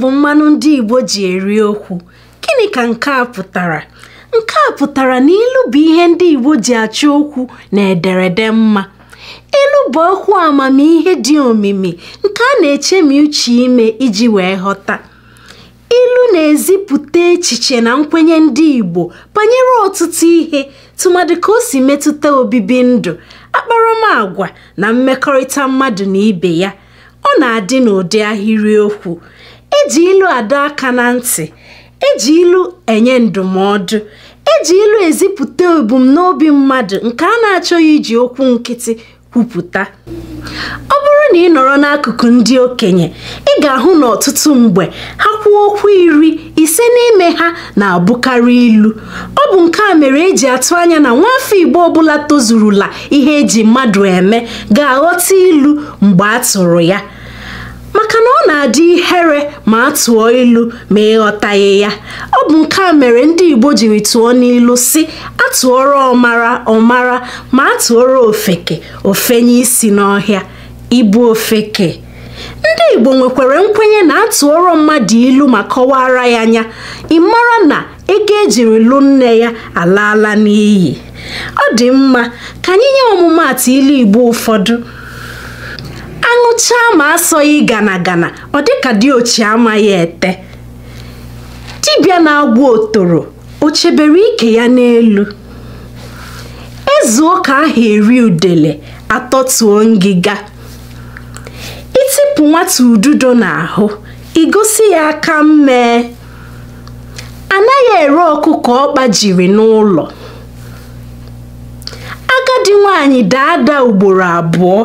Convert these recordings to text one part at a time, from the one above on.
bụ mmanụ ndị Igbo ji eri okwu gịnị ka nke a pụtara nke a pụtara na ilu bụ ihe ndị Igbo ji achọ okwu na ederede mma ilu bụ okwu amamihe dị omimi nke a na-echemi uche ime iji wee ghọta ilu na-ezipụta echiche na nkwenye ndị Igbo banyere ọtụtụ ihe tụmadị ka o si metụta obibi ndụ akparamagwa na mmekọrịta mmadụ na ibe ya ọ na-adị n'ụdị ahịrịokwu eji ilu adọ aka na ntị eji ilu enye ndụmọdụ eji ilu ezipụta ebumnobi mmadụ nke a na-achọghị iji okwu nkịtị kwupụta ọ bụrụ na ị nọrọ n'akụkụ ndị okenye ị ga-ahụ na ọtụtụ mgbe ha kwuo okwu iri ise n'ime ha na-abụkarị ilu ọ bụ nke a mere eji atụ anya na nwafọ Igbo ọbụla tozurula ihe eji mmadụ eme ga-aghọta ilu mgbe a tụrụ ya maka na ọ na-adị ihere ma a tụọ ilu ma ịghọtaghị ya ọ bụ nke a mere ndị Igbo jiri tụọ n'ilu si atụọrọ ọmara ọmara ma a tụọrọ ofeke ofenye isi n'ọhịa ibu ofeke ndị Igbo nwekwara nkwenye na atụọrọ mmadụ ilu ma kọwara ya anya ịmara na ego ejiri lụ nne ya alaala n'iyi ọ dị mma ka anyị nye ọmụmaatụ ilu Igbo ụfọdụ sụchaa ma asọghị gana gana ọ dịka diochi amaghị ete dibịa na agwụ otoro o chebere ike ya n'elu ezu ụka ahụ eri udele atọtuo ngịga itipụ nwata ududo n'ahụ igosi ya aka mmee anaghị ere ọkụkọ ọkpa jiri n'ụlọ agadi nwanyị daa ugboro abụọ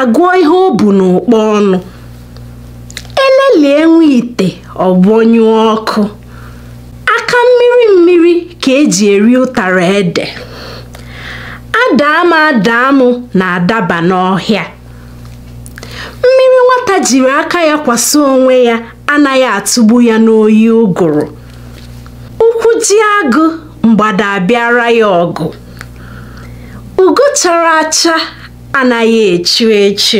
agụọ ihe o bu n'ụkpọ ọnụ elelie nwa ite ọgbọnyụọ ọkụ aka mmiri mmiri ka eji eri ụtara ede adaa adaam na-adaba n'ọhịa mmiri nwata jiri aka ya kwasa onwe ya anaghị atụgbu ya n'oyi ụgụrụ ụkwụ ji agụ mgbada abịara ya ọgụ ugo chara acha anaghị echu echu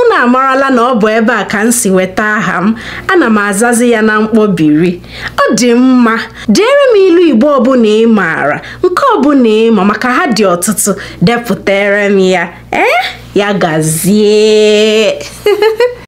unu amarala na ọ bụ ebe a ka m si weta aha m ana m azazi ya na mkpọbiri ọ dị mma deere m ilu igbo ọbụla ị maara nke ọbụla ịma maka ha dị ọtụtụ depụtere m ya ee eh? ya gazie